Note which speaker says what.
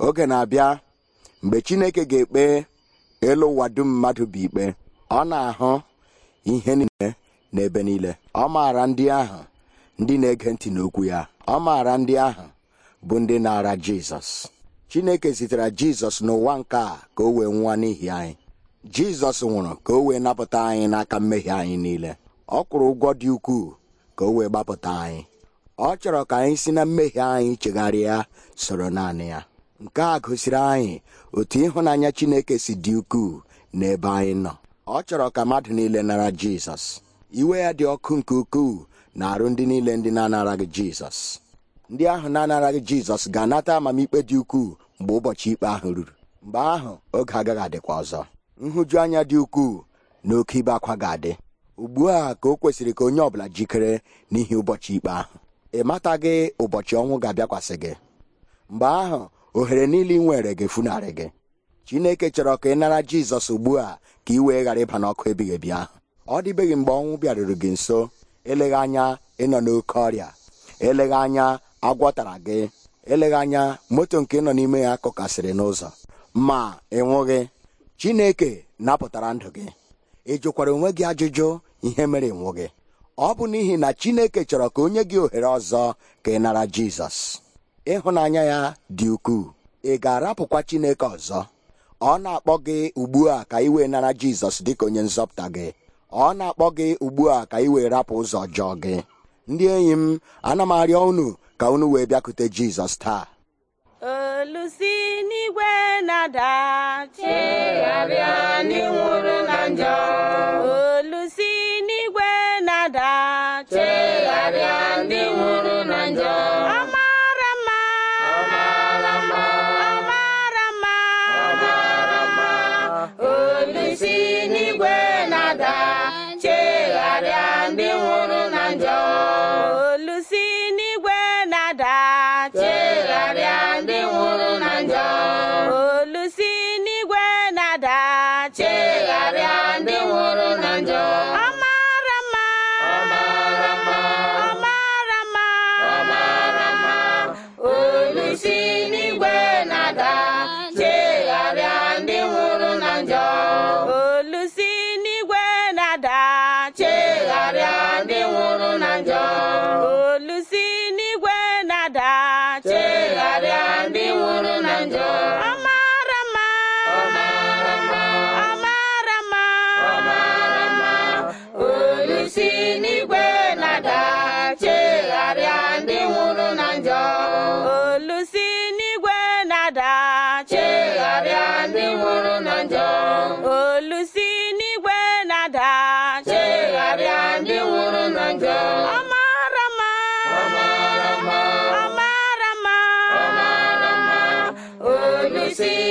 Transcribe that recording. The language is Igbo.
Speaker 1: oge na-abịa mgbe chineke ga-ekpe elu ụwa dum mmadụ bụ ikpe ọ na-ahụ ihe niile n'ebe niile ọ maara ndị ahụ ndị na-ege ntị n'okwu ya ọ maara ndị ahụ bụ ndị na-ara jizọs chineke zitere jizọs n'ụwa nke a ka o wee nwa n'ihi anyị jizọs nwụrụ ka o wee napụta anyị n'aka mmehie anyị niile ọ kwụrụ ụgwọ dị ukwuu ka o wee gbapụta anyị ọ chọrọ ka anyị si na mmehie anyị chegharịa soro naanị ya nke a gosiri anyị otu ịhụnanya chineke si dị ukwuu n'ebe anyị nọ ọ chọrọ ka mmadụ niile nara jizọs iwe ya dị ọkụ nke ukwuu na arụ ndị niile ndị na-anaraghị jizọs ndị ahụ na-anaraghị jizọs ga-anata amamikpe dị ukwuu mgbe ụbọchị ikpe ahụ ruru mgbe ahụ oge agaghị adịkwa ọzọ nhụju anya dị ukwuu na oke ibe akwa ga-adị ugbu a ka o kwesịrị ka onye ọbụla jikere n'ihi ụbọchị ikpe ahụ ị mataghị ụbọchị ọnwụ ga-abịakwasị gị mgbe ahụ ohere niile ị nwere ga-efunarị gị chineke chọrọ ka ị nara jizọs ugbu a ka i wee ghara ịba n'ọkụ ebighị ebi ahụ ọ dịbeghị mgbe ọnwụ bịaruru gị nso eleghị anya ịnọ n'oke ọrịa eleghị anya agwọtara gị eleghị anya moto nke nọ n'ime ya kụkasịrị n'ụzọ ma ịnwụghị chineke napụtara ndụ gị ị jụkwara onwe gị ajụjụ ihe mere ịnwụ gị ọ bụ n'ihi na chineke chọrọ ka onye gị ohere ọzọ ka ị nara jizọs ịhụnanya ya dị ukwuu ị ga-arapụkwa Chineke ọzọ ọ na-akpọ gị ugbu a ka ị wee nara Jizọs dịka onye nzọpụta gị ọ na-akpọ gị ugbu a ka ị rapụ ụzọ jọọ gị ndị enyi m ana m arịọ unu ka unu wee bịakute Jizọs taa
Speaker 2: olusi n'igwe na-ada olusi n'igwe na-ada chegharịa ndị nwụrụ na njọ olusi n'igwe na-ada chegharịa ndị nwụrụ na njọ ọmara mma ọmara mma olusi ada chegharịa ndị nwụrụ na njọ ọ ọ ọ
Speaker 3: olusi n'igwe na-ada chegharịa ndị nwụrụ na njọ Sim.